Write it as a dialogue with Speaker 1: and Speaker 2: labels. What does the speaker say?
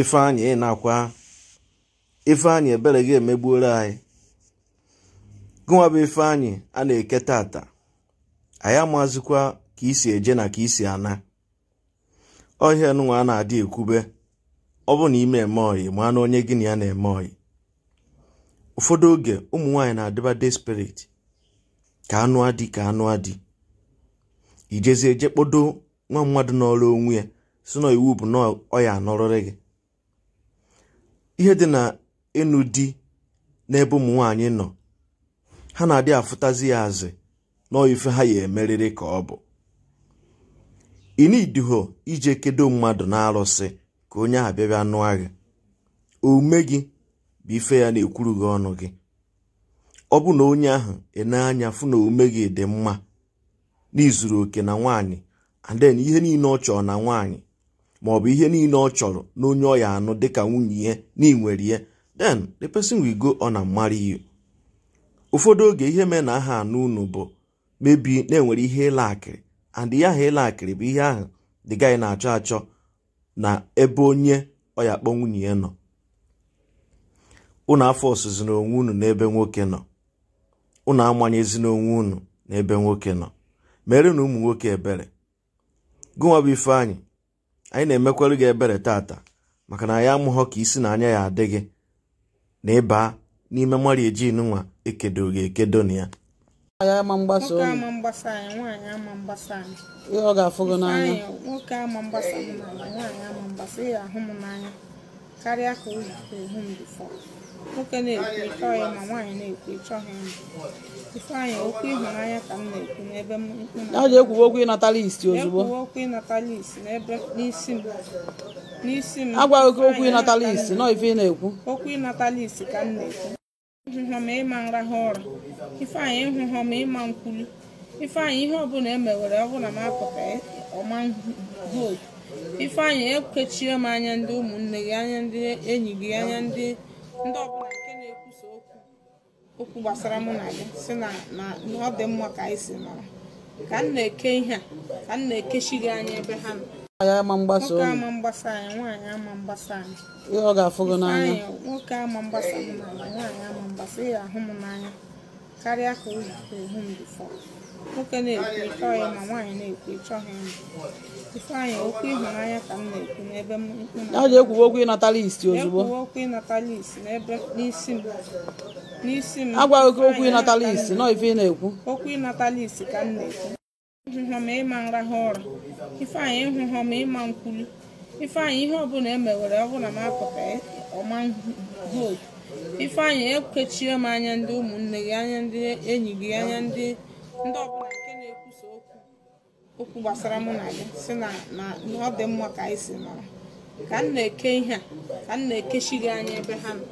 Speaker 1: ifeanyị ịnakwa ifeanyị ebere gị emegbuola anyị gụnwa bụ ifeanyị a na-eke tata anyị amazikwa ka isi eje na ka isi ana ọhịa nụnwa a na-adị ekwube ọ bụ na ime eme oyi ma na onye gị na ya na-eme oyi ụfọdụ oge ụmụ nwaanyị na-adịba spirit ka anụ adị ka anụ adị ijezi eje kpodo nwa mmadụ n'ọrụ onwe ya si na iwu bụ na ọ ya gị ihe dị na ịnụ di n'ebe ụmụ nwaanyị nọ ha na-adị afụtazi ya azị n'ife ha ya emeriri ka ọ bụ inidiho ije kedo mmadụ na-arụsị ka onye ahụ bịabịa nụọ gị omume gị bụ ife ya na-ekwuru gị ọnụ gị ọ bụ na onye ahụ ene anya fụ na omume gị dị mma n'izuru oke na nwaanyị and then ihe niile ọ chọọ na nwaanyị bụ ihe niile ọ chọrọ na onye ọ ya anụ dịka nwunye ya na ịnwere ya den the person will go on and marry ụfọdụ oge ihe mee na aha anụ unu bụ mebi na-enwere ihe ịla akịrị and ihe aha ịla akịrị bụ ihe ahụ the guy na-achọ achọ na ebe onye ọ ya akpọ nwunye ya nọ unu afọ ọsụzi na onwe unu n'ebe nwoke nọ unu amanyezi onwe unu n'ebe nwoke nọ mere na ụmụ nwoke ebere gụnwa bụ ifeanyi. anyị na-emekwere gị ebere tata maka na anyị amụghọ ka isi na anya ya adịghị na ịba n'ime mmari ejin nwa ekedo gị ekedo na ya ihe ọ ga-afụ n'anya
Speaker 2: karịa ka o ehu m bifọ nwoke na-ekwu ya ma nwaanyị na-ekwu ha m ifeanyị okwu ịhụnanya ka m na-ekwu n'ebe m ọ ga-ekwuwe okwu ịnata isi ozugbo ekwuwe okwu ịnata isi n'ebe n'isi m n'isi m agwaghị oke okwu ịnata isi nọ ife ị na-ekwu okwu ịnata isi ka m na-ekwu ịhụhọ ma ịma nra nrahụ ụra ifeanyị ịhụhọ ma ịma nkwulu ifeanyị ihe ọbụla emewere ọbụla m apụta ọma vootu ifeanyị ekechie m anya ndị ụmụnne gị anya ndị enyi gị anya ndị ndị ọbụla nke na-ekwusa okwu gbasara mụ na gị si na ọ dị mma ka anyị si mara ka m na-eke ihe a ka m na-ekechi gị anya ebe ha nọ nwoke ama mgbasa anyị nwaanyị ama mgbasa anyị ihe ọ ga-afụ gị n'anya nwoke ama mgbasa m n'ala nwaanyị ama mgbasa ya ahụ m n'anya karịa ka o hụ m bifọ nwoke na-ekwu ya ma nwaanyị na-ekwu ịchọ ha m ifeanyị okwu ịhụnanya ka m na-ekwu n'ebe m ọ ga-ekwuwe okwu ịnata isi ozugbo ekwuwe okwu ịnata isi n'ebe n'isi m n'isi m agwaghị okwu ịnata isi nọ ife ị na-ekwu okwu ịnata isi ka m na-ekwu ịhụhọ ma ịma nrahụ ụra ifeanyị ịhụhọ ma ịma nkwulu ifeanyị ihe ọbụla emewere ọbụla m apụta ọma hope ifeanyị ekechie m anya ndị ụmụnne gị anya ndị enyi gị anya ndị ndị ọbụla nke na-ekwusa okwu okwu gbasara mụ na gị si na ọ dị mma ka anyị si mara ka m na-eke ihe a ka m na-ekechi gị anya ebe ha nọ